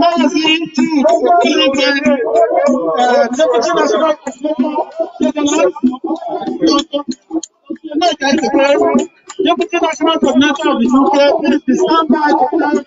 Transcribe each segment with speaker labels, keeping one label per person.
Speaker 1: Maazị Jude Deputy National Coordinator of the UK, please stand by one minute.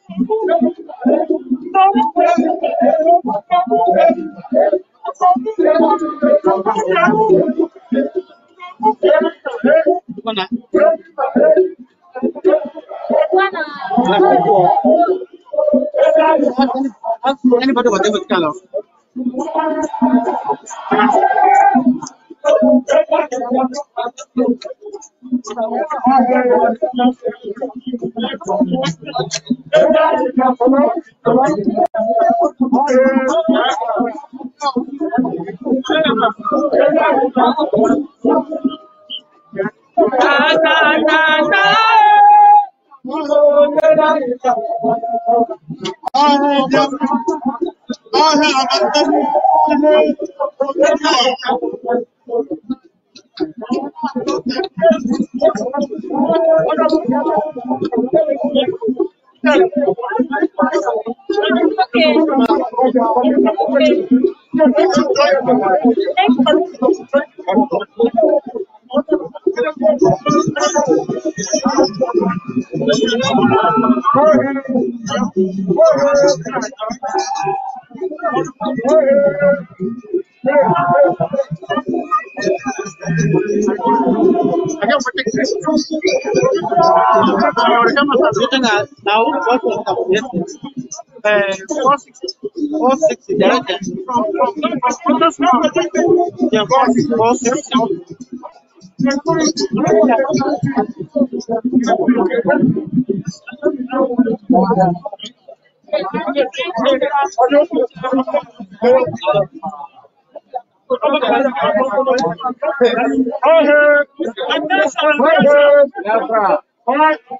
Speaker 1: anybody was able to kind Thank you. written as now business. Uh, 460, from, from, from, from, from,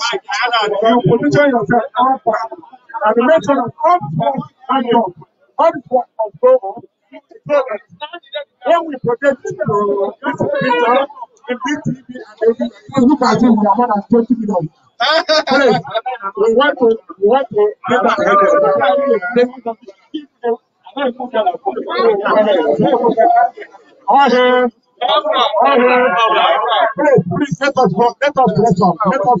Speaker 1: You position yourself upward
Speaker 2: and make sure that
Speaker 1: upward and up, upward and go up. So that when we protect project this picture in BTV and look at it, we are more than 20 million. Please, we want to, we want to get you. headed. Please, let us, let us bless them. Let us.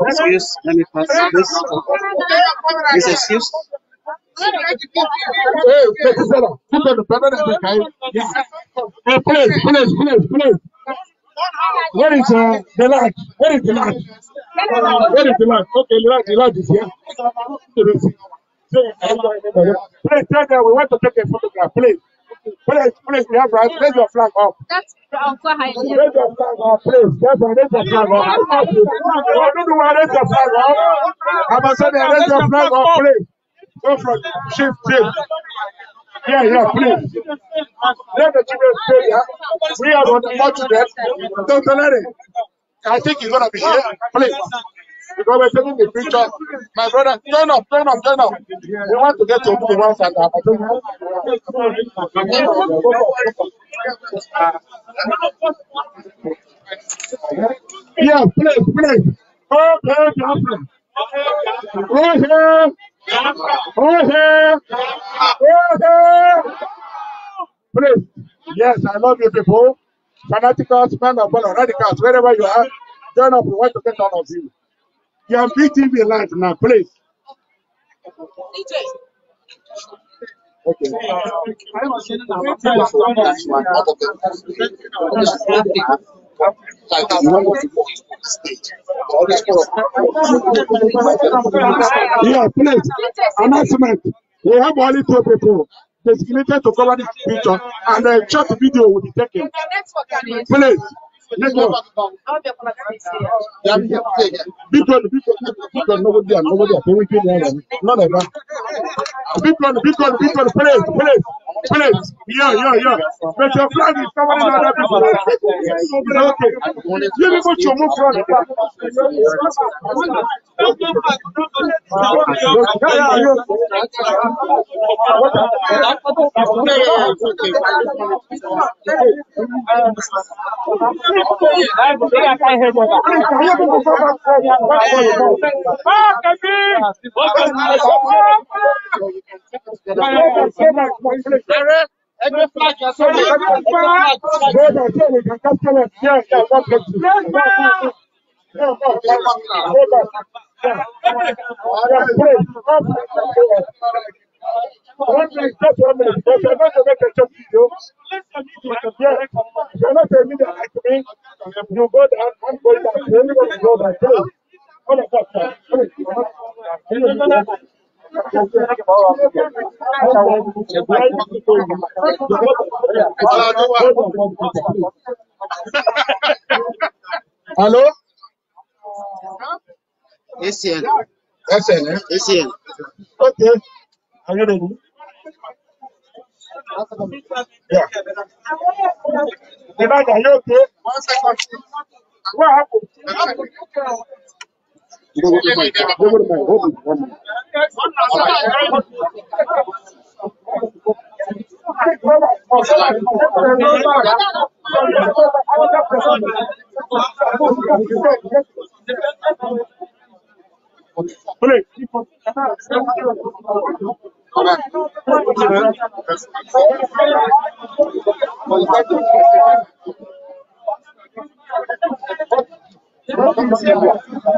Speaker 1: Excuse, let me pass this. This excuse. Hey, please, please, please, please. Where is uh, the light? Where is the light? where is the light? Okay, the light, the light is here. Please, tell them we want to take a photograph, please. Please, please, we have right. Raise your flag up. That's Uncle Raise your flag up, please. Yes, raise your flag up. I don't know why raise your flag up. I'm saying raise your flag up, please. Don't forget, chief, chief.
Speaker 2: Yeah, yeah, please.
Speaker 1: Let the children stay here. We are on the march to them. Don't let it. I think he's gonna be here. Please. Because we're taking the picture. My brother, turn up, turn up, turn up. We want to get to the ones that are. Yeah, please, please. Okay, okay. please. Right here. Jose! Jose! Please. Yes, I love you people. Fanaticals, men of color, radicals, wherever you are, join up. We want to get all of you. You are BTV live now, please. okay like the normal people on the stage. All these people Yeah, please. Announcement. We have only two people designated to cover this picture and a short video will be taken. Please. Let's go. Bitcoin, Bitcoin, Bitcoin, nobody there, nobody there. None of that. Bitcoin, Bitcoin, Bitcoin, please, please. Please, yeah, yeah. But your flag is covering another people. Okay. You people should move from the Thank you. Ààrẹ ẹgbẹ́ flag You go down, go Alô? Esse é. Esse é, né? Esse ano. Ok. Agradeço. Yeah. The bag, are you okay? Go to
Speaker 2: Thank you.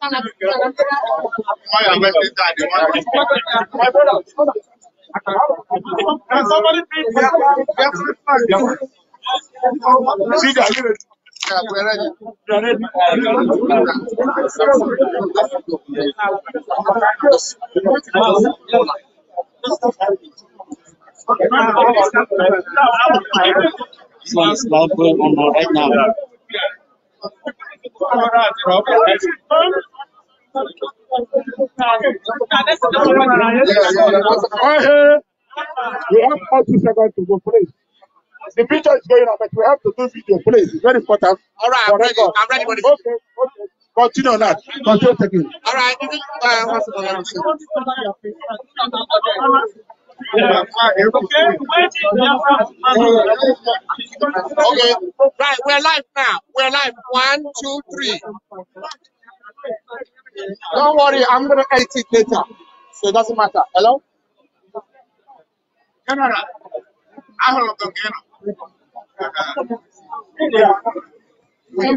Speaker 1: Why am I that? Can somebody please? See that? We're ready. This going on right now. We have all two seconds to go, please. The picture is going up, but we have to do video, please. It's very important. All right, I'm ready. I'm ready for this. Okay, okay. Continue on that. Continue taking. All right. Okay. Right, we're live now. We're live. One, two, three. Don't worry, I'm gonna edit it later. So it doesn't matter. Hello? I don't know. So we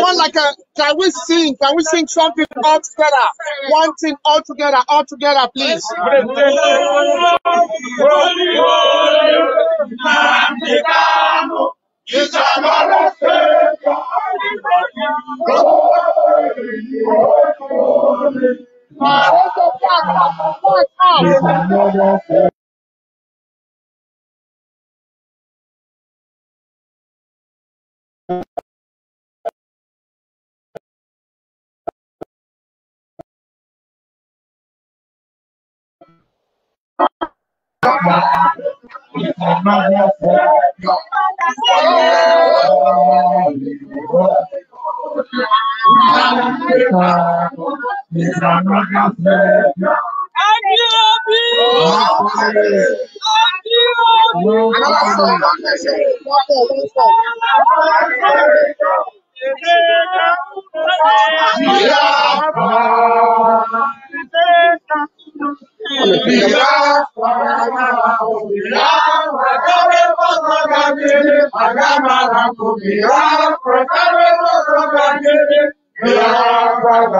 Speaker 1: want like a can we sing? Can we sing something all together? One thing all together, all together, please. Yeah.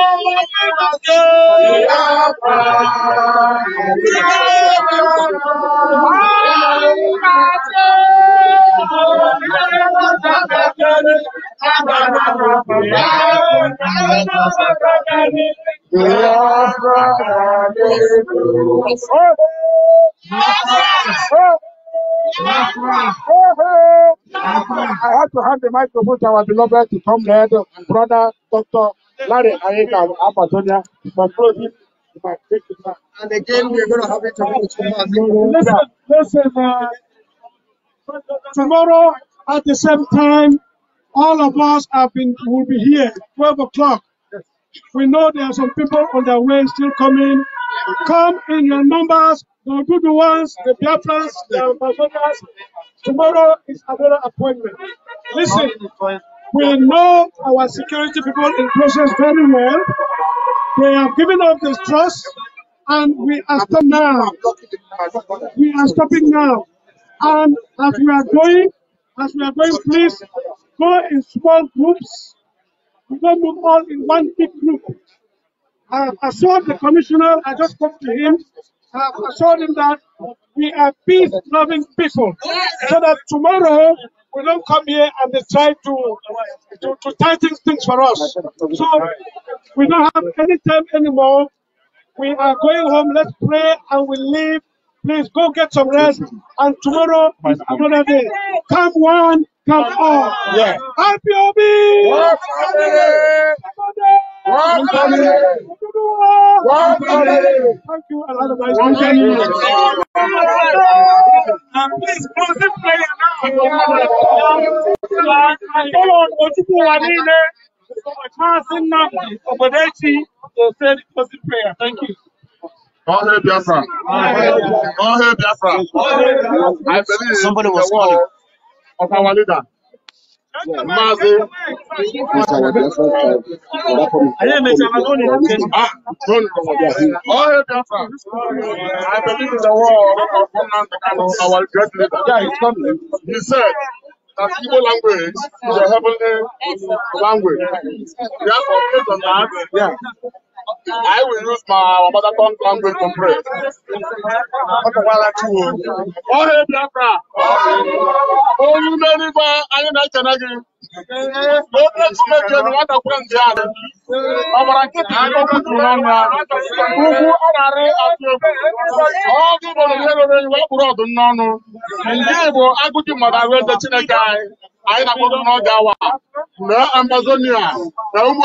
Speaker 1: I have to hand the microphone to our beloved to come there, brother, doctor, and again, we're going to have it tomorrow. Listen, listen, uh, tomorrow at the same time, all of us have been will be here 12 o'clock. We know there are some people on their way still coming. Come in your numbers, the good ones, the ones, the Amazonas. Tomorrow is another appointment. Listen. We know our security people in process very well. They have given up this trust, and we are stopping now. We are stopping now. And as we are going, as we are going, please go in small groups. We don't move all in one big group. I have assured the commissioner, I just spoke to him, I have assured him that we are peace-loving people, so that tomorrow we don't come here and they try to, to, to tighten things for us. So we don't have any time anymore. We are going home. Let's pray and we leave. Please go get some rest. And tomorrow is another day. Come one, come all. Yeah. RPOB! One family! One family! One family! Thank you. Please, closing prayer now. Ọlọ́run ojúkú wa ní ilé. Máàsì Nnamdi Ọ̀gbọ̀dẹ́chi to say the closing prayer. Thank you. All hail Biafra. All hail Biafra. I believe in the word of our leader. I believe in the word of one our great leader. He said, that Igbo language is a heavenly language. Therefore, based on that, yeah. I will use my mother tongue language to pray. Oh, Ọhịa Biafra, olu n'elu anyị na-echena gị. nkịtị na-arị atụ egwu ọ ndị n'ọnụ ndị Igbo agụgị mmadụ ahụ Chineke anyị anyị na-akpọdo n'oge awa Amazonia na ụmụ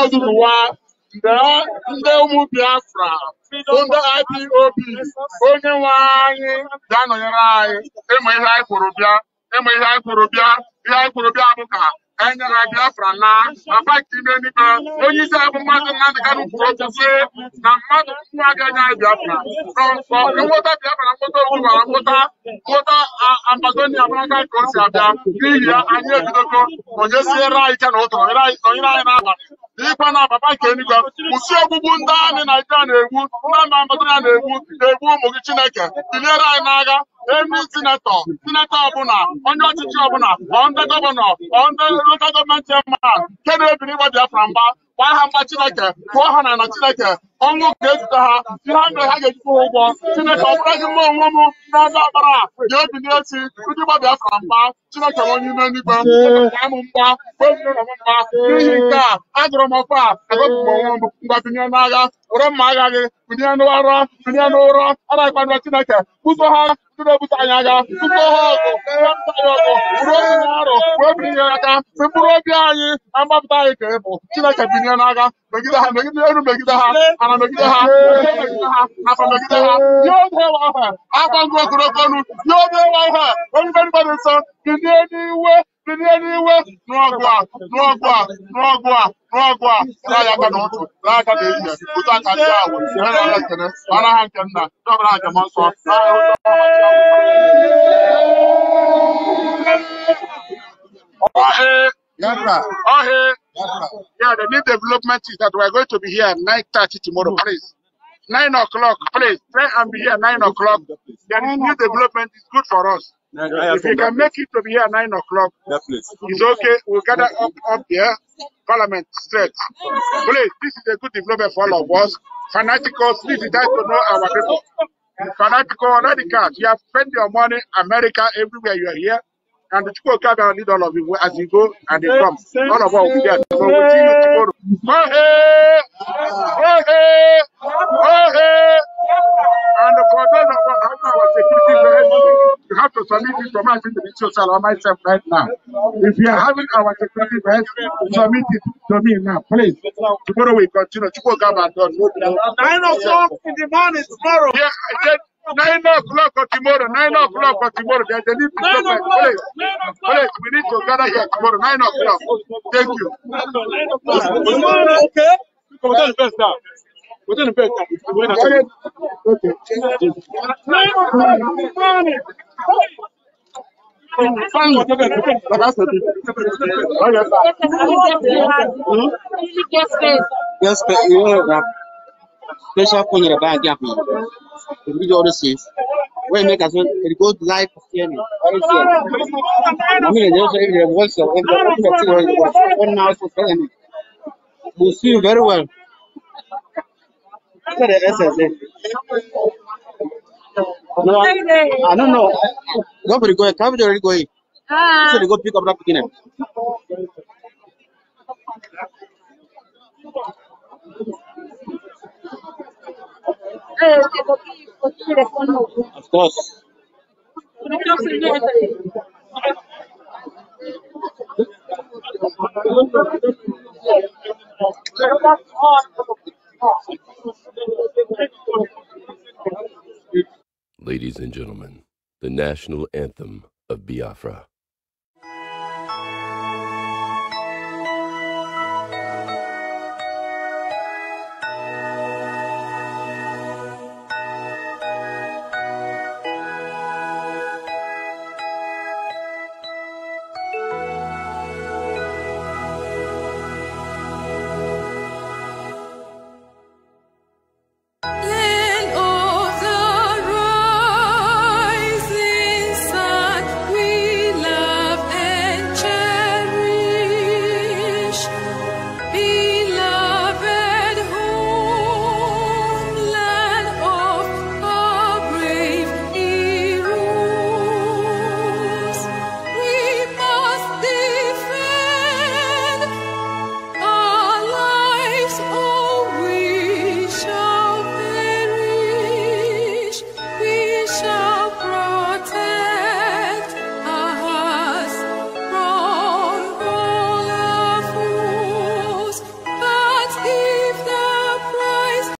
Speaker 1: ndị ụmụ Biafra ndị IPOB onye nwe anyị ga-anọnyere anyị ịma ihe anyị kwuru bịa ịma ihe anyị kwuru bịa ihe anyị bịa ka e nyere Biafra na papa ime eluigwe onye isi abụ mmadụ Nnamdị Kanụ kwuru okwu sị na mmadụ nwa ga-enye anyị Biafra nweta Biafra nweta ogbubara nweta nweta Amazonia maraka ka o si abịa n'ihi ya anyị ebidogo onye si ere anyị ike na ụtụrụ onyere anyị n'abalị n'ikwa na papa nke eluigwe kwụsị ogbugbu ndị amị Naijiria na-egbu ndị amị Amazonia na-egbu na-egbu ụmụ gị Chineke biliere anyị n'agha emi sinetọ sinetọ ọbụla onye ọchịchị ọbụla ọ ndị gọvanọ ọ ndị gọọmenti cheman nke na-ebiri ịgba Biafra mgba gbaa ha mma Chineke tụọ ha na na Chineke ọnwụ ga-ejide ha ihe ha mere ha ga-ejikwa ha ụgwọ Chineke ọ bụraghị mma onwe m n'ebe ọbara a ga-ebili echi ndị gba Biafra mgba Chineke onye ime n'igwe m mgba mgba n'ihi nke a ajụrụ m ọkwa agọpụrụ onwe m mgba binye n'agha were mma agha gị binye n'ụra binye n'ụrọ a na-akpado Chineke buso ha ndị na-ebute anyị agha tupu ha ọgụ anyị ọgụ bụrụ obi na arụ wee binye aka si mkpụrụ obi anyị na mgbapụta anyị ka ị bụ Chineke binye na-aga, megide ha megide elu megide ha ana megide ha megide ha afọ megide ha ha obe wa ihe akwa nsọ bilie n'iwe bilie n'iwe n'ọgụ a n'ọgụ a n'ọgụ a n'ọgụ a raa ya aka na raa aka n'ehihie otu aka ndị ahụ ihe na-ala ekene mara ha nke nna ndị ọbụla ajem nsọ ọhịa Yeah, the new development is that we are going to be here at 9.30 tomorrow, please. Nine o'clock, please. Try and be here nine o'clock. The new development is good for us. If you can make it to be here nine o'clock, it's okay. We'll gather up, up here, Parliament straight. Please, this is a good development for all of us. Fanaticals, please, you to know our people. Fanatical, radical, you have spent your money, America, everywhere you are here. And the Chukwuka will lead all of you as you go and they come. All of us will be there. So we'll see you tomorrow. Oh, hey! Oh, hey! Oh, hey! And for those of us after our security measures, you have to submit it to my to the social or myself right now. If you are having our security measures, submit it to me now, please. Tomorrow we continue. Chukwuka will done. Nine o'clock in the morning tomorrow. Yeah, I said. Nine o'clock or tomorrow. Nine o'clock or tomorrow. There's a little problem. Please, we need to gather here tomorrow. Nine o'clock. Thank you. Okay. Within the best time. Okay. Nine o'clock Yes. Yes. Yes. Yes, Yes. Yes. Yes. Yes. Pressure akwụnyere bag akwụnyere eburu gị ọrụ safe wee mee It goes live sharing ọrụ na mmiri dị ụzọ ebere voice of one now for president We see you very well after the SSA no I don't know nobody going cabbage already going so they go pick up that beginner Thank you. Of course. Ladies and gentlemen, the national anthem of Biafra.